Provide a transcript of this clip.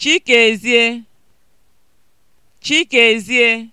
Chikezie Chikezie